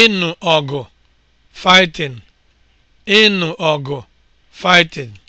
ịnụ ọgụ (fighting), ịnụ ọgụ (fighting)